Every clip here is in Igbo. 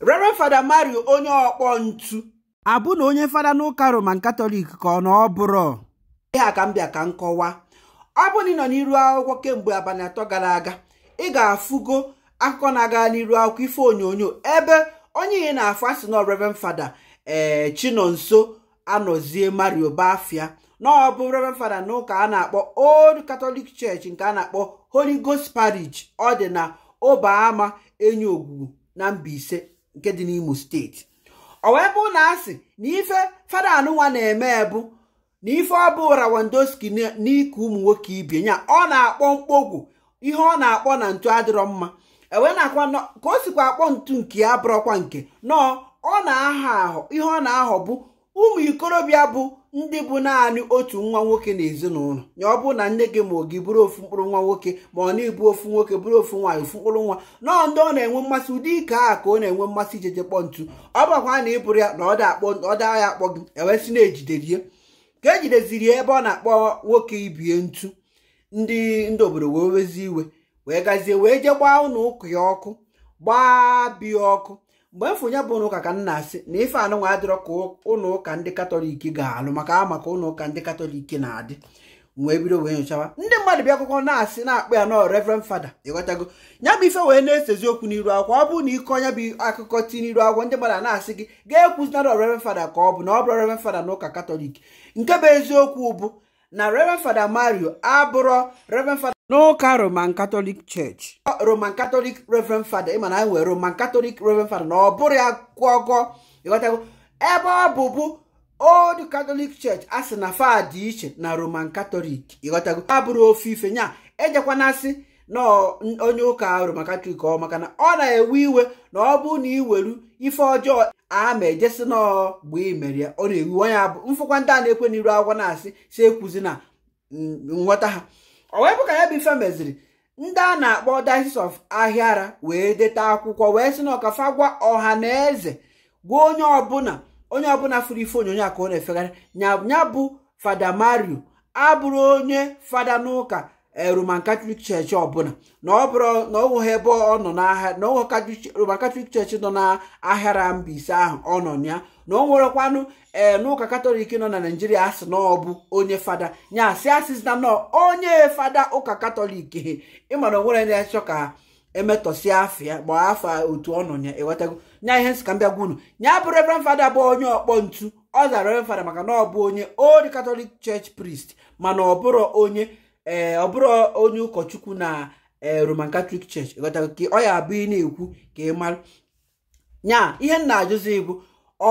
Reverend Fada Mario onye ọkpọ ntu abụ na onye fada n'ụka Roman Katọlik ka ọ na ọ bụrụ ihe ka m bịa ka m ọ bụ ị nọ n'iru akwụkwọ kemgbe abalị atọ gara aga ị ga-afụgo akụkọ na-aga n'iru akwụkwọ ife onyonyo ebe onye ihe na-afụ asị na Reverend Fada ee eh, Chinonso anọzie Mario Bafia na ọ bụ Reverend Fada n'ụka a na-akpọ Old Catholic Church nke a na-akpọ Holy Ghost Parish ọ dị na Obaama Enyi Ogwugwu na Mbaise nke dị n'Imo steeti ọ wee bụ na asị na ife fada anụnwa na-eme bụ na ife ọ bụ Rawandoski n'ike ụmụ nwoke ibie ya ọ na-akpọ mkpọgwụ ihe ọ na-akpọ na ntu adịrọ mma ewe na-akwa ka o sikwa akpọ ntu nke ya bụrọkwa nke nọọ ọ na aha ahụ ihe ọ na-ahọ bụ ụmụ ikorobịa bụ ndị bụ naanị otu nwa nwoke na ezinụlọ ya ọ bụ na nne gị ma ọ gị bụrụ ofu mkpụrụ nwa nwoke ma ọ na-ebu ofu nwoke bụrụ ofu nwaanyị ofu mkpụrụ nwa nọọ ndị ọ na-enwe mmasị ụdị ike a ka ọ na-enwe mmasị ijeje kpọ ntu ọ bụrụkwa na ịbụrụ ya na ọ daa ya akpọ gị ewesị na-ejiderie ka ejideziri ya ebe ọ na-akpọ nwoke ibie ntu ndị ndị obodo wee wezi iwe wee gazie wee jee gbaa ụnụ ụka ya ọkụ gbaa ọkụ mgbe mfụnye bụ ụlọ ụka ka nna na-asị na ife anụnwa adịrọ ka ụlọ ụka ndị katọlik ga-alụ maka a maka ụlọ ụka ndị katọlik na-adị wee bido wee nyochawa ndị mmadụ bịa akwụkwọ na-asị na akpụ ya nọ reverend fada ịghọtago ya bụ ife wee na-esezi okwu n'iru akwụkwọ ọ bụrụ na ịkọ onye bụ akụkọ ti n'iru akwụkwọ ndị mmadụ na-asị gị ga-ekwuzinara reverend fada ka ọ bụ na ọ bụrụ reverend fada na ụka katọlik nke bụ eziokwu bụ na reverend fada mario abụrọ reverend fada n'ụka roman katọlik church roman katọlik reverend fada ị ma na anyị nwere roman katọlik reverend fada na ọ bụrụ ya gụọgọ ịghọtago ebe ọ bụbu old katọlik church a sị na fa dị iche na roman katọlik ịghọtago bụrụ ofe ife nya ejekwana asị na onye ụka roman katọlik ọ maka na ọ na-ewe iwe na ọ bụ na iweru ife ọjọọ ama ma ejesi n'ọgba imere ya ọ na-ewu onye abụ mfụkwa ndị a na-ekwe n'iru agwọ na-asị si ekwuzi na mm, nghọta ha ọ wee bụ ka ya bụ ife meziri ndị a na-akpọ Diocese of Ahịara wee deta akwụkwọ wee sị na ọkafa gwa ọha na eze gwa onye ọbụla onye ọbụla fụrụ ife onyonyo a ka ọ na-efegharị nya bụ fada Mario abụrụ onye fada n'ụka roman catholic church ọbụla na ọ bụrụ na ọ ebe ọ nọ n'ahịa na roman catholic church nọ n'ahịara Mbaise ahụ ọ nọ ya na ọ nwerekwanụ ee eh, n'ụka katọlik nọ na naijiria asị na ọ bụ onye fada ya si asị na nọ onye fada ụka katọlik he ịmara onwere na achọ ka e afọ ya gbaa afọ otu ọ nọ ya ewetago nya ihe nsika mbịagwa unu nya bụ reverend fada bụ onye ọkpọ ntu ọ zara reverend fada maka na ọ bụ onye old katọlik church priest mana ọ bụrụ onye ee eh, ọ bụrụ onye ụkọchukwu na eh, roman katọlik church ịghọtara ka ọ ya abụ na-ekwu ka ị mara nya ihe nna na-ajụzi bụ ọ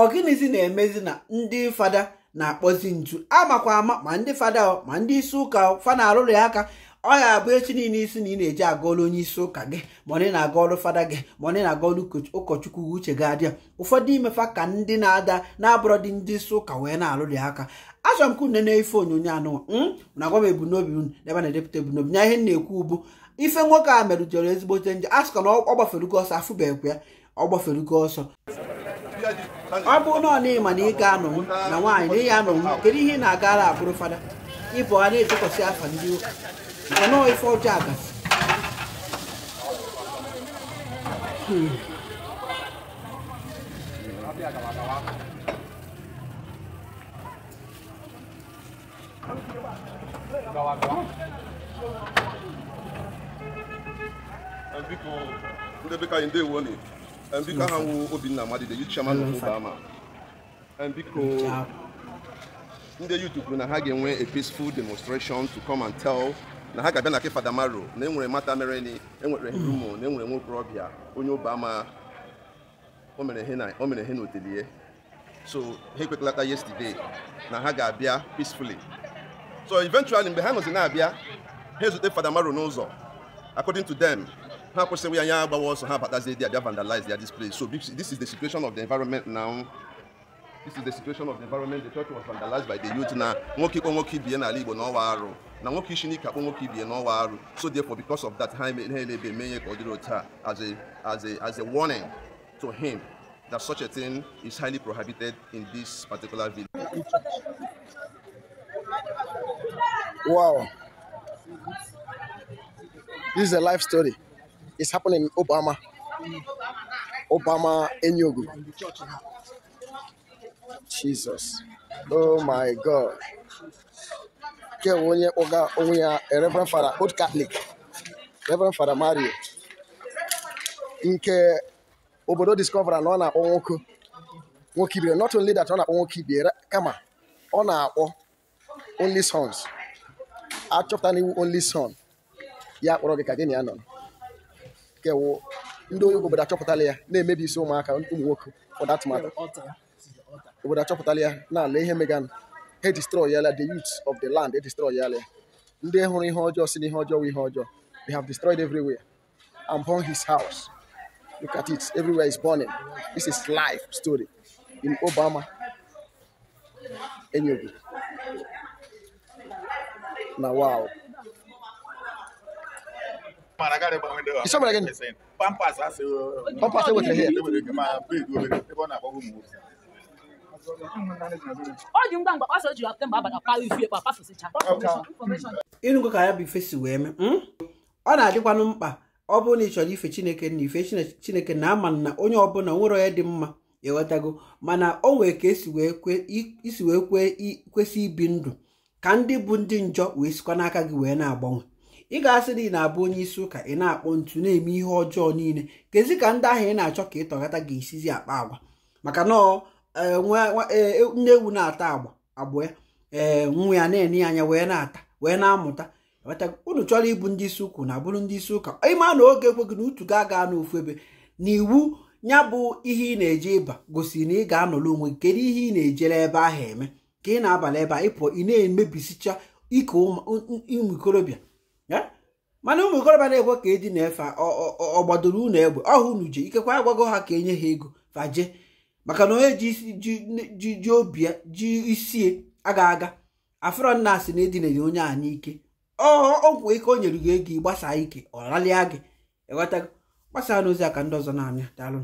na-emezi na ndị fada na-akpọzi nju amakwa ama ma ndị fada ma ndị isi ụka fa na-arụrụ ya aka ọ ga-abụ echi niile isi na ị na-eji aga ọrụ onye isi ụka gị ma ọ na-aga ọrụ fada gị ma ọ na-aga ọrụ ụkọchukwu uche gị adịa ụfọdụ imefa ka ndị na-ada na-abụrọ dị ndị isi ụka wee na-alụrị aka achọrọ m ka une na-efe onyonyo anụ hmm? na agwa m ebumnobi unu ebe na-edepụta ebumnobi nya ihe na-ekwu ugbu ife nwoke a merụjere ezigbote nje a sịkwa na ọ gbaferugo ọsọ afụbeghịkwa ya ọ gbaferugo ọsọ ọ bụ na na ịma na ị ga-anọ na nwaanyị na ị ya anọ kedu ihe ị na-agara abụrụ fada ịbụ a na-etụkwasị afa ndị ụka ono ifọjọ àgbà. ndị bika ndewo ni biko aha nwụ obinna amadide yu chairman of obama biko ndị youth kwuru na ha ga-enwe a peaceful demonstration to come and tell na ha ga-abịa na ke fada maro na enwere mata mere ni enwere rumo na enwere nwokorobịa onye ụba ama o mere ihe na otelie so ha ekwekalata yesterday na ha ga-abịa peacefully so eventually mgbe ha nọzi na-abịa ha ezute fada maro n'ụzọ according to them ha kwụsịrị ya anya agbawa ọsọ ha batazie dị abịa vandalize ya this place so this is the situation of the environment now this is the situation of the environment the church was vandalized by the youth na nwoke ikpọ nwoke ibie n'ala igbo na ọwa arụ na nwoke isi n'ike akpọ nwoke ibie na ọwa arụ so therefore because of that ha elebe eme ihe ka ọ dịrị otu a as a as a as a warning to him that such a thing is highly prohibited in this particular village. Wow. This is a life story. It's happening in Obama. Obama Enyogu. Jesus oh my God nke onye kpọga onwe ya Reverend Father Old Catholic Reverend Father Mario nke obodo discovera na ọ na-akpọ nwoke nwoke ibie not only that ọ na-akpọ nwoke ibie kama ọ na-akpọ only sons achọpụta n'iwu only son ya kpọrọ gị ka gị na ya nọ nke ndị onye obodo achọpụtala ya na-emebi isi ụmụaka ụmụ nwoke for that matter obodo achọpụtala ya na-ala ihe megana he destroyala the youth of the land he destroyala ya ndị hụrụ ihe ọjọọ si na ihe ọjọọ ihe ọjọọ they have destroyed everywhere I'm burn his house look at it everywhere is burning this is life story in Obama Enugu Now, wow Isa mara gịnị? Pampas asị. Pampas what wetere here. ọ dị ngwa ngwa kpasa o jiri mgbe abalị akpa ifu ekpe apafụsịcha ịnụgo ka ya bụ ife si wee mee hmm? ọ na-adịkwanụ mkpa ọ bụrụ na ị chọrọ ife chineke na ife chineke na ama na onye ọbụla nwere onye dị mma ewetago mana o nwere ka esi wee kwesị ibi ndụ ka ndị bụ ndị njọ wee sikwa n'aka gị wee na-agbanwe ị ga-asị na ị na-abụ onye isi ụka ị na-akpọ ntu na-eme ihe ọjọọ niile kezi ka ndị ahụ ị na-achọ ka ị tọghata ga akpa agwa maka na Eh, nne eh, eh, ewu na-ata agba abụọ ya ee nwa ya na-enye anya wee na-ata wee na-amụta unu chọrọ ịbụ ndị isi ụkwụ na bụrụ ndị isi ụka ịma na oge ekweghị na utu ga-aga n'ofu ebe na iwu ya bụ ihe ị na-eje ịba gosi na ị ga-anọrọ onwe kedu ihe ị na-ejere ebe ahụ eme ka ị na-abalị ebe a ịpụọ ị na-emebisicha ike ụmụ ikorobịa mana ụmụ ikorobịa na-ekwe ka eji na efe ọgbadoro unu egbe ọhụ unu je ikekwa agwago ha ka enye ha ego faje maka na onye ji ji obi ji isie aga aga afọrọ na asị na edinere onye a n'ike ọgwụ ike o nyere gị ego gbasaa ike ọ ralịa gị eweta gbasaa n'ozi aka ndị ọzọ na-amịa daalụ